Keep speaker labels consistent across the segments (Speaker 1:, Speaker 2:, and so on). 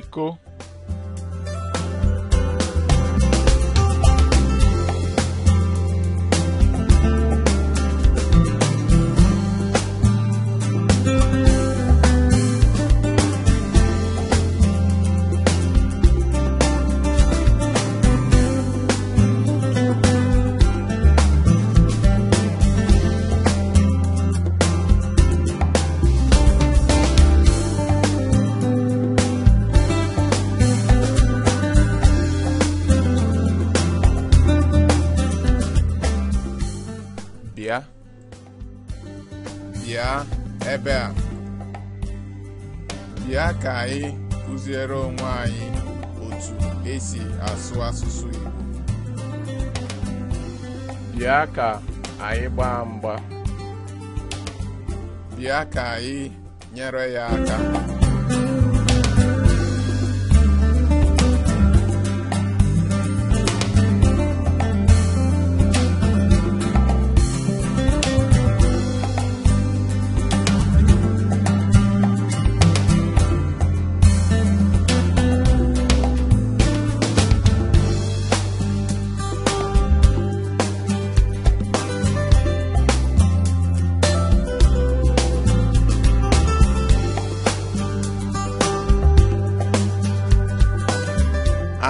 Speaker 1: México bịa ebe a bịa ka anyị kụziere onwe anyị otu esi asụ asụsụ Igbo bịa ka anyị gbaa mgba bịa ka anyị nyere ya aka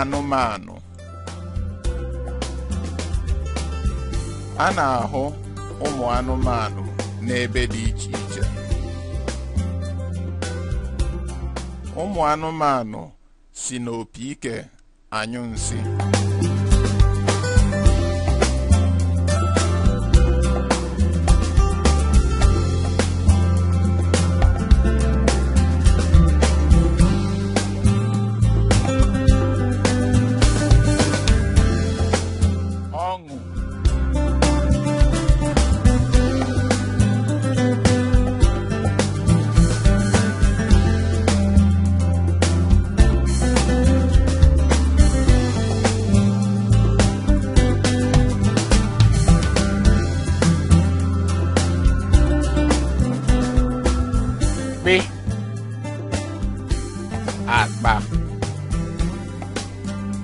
Speaker 1: anụmanụ a na-ahụ ụmụ anụmanụ n'ebe dị iche iche ụmụ anụmanụ si n'opi ike anyụ nsi.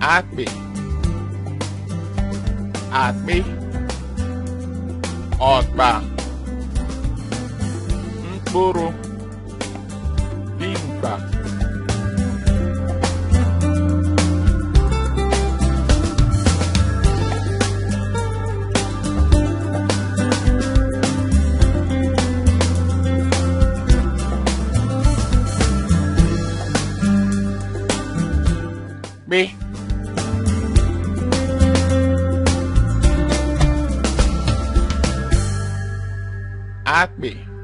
Speaker 1: akpị akpị ọkpa mkpụrụ dimkpa At Me.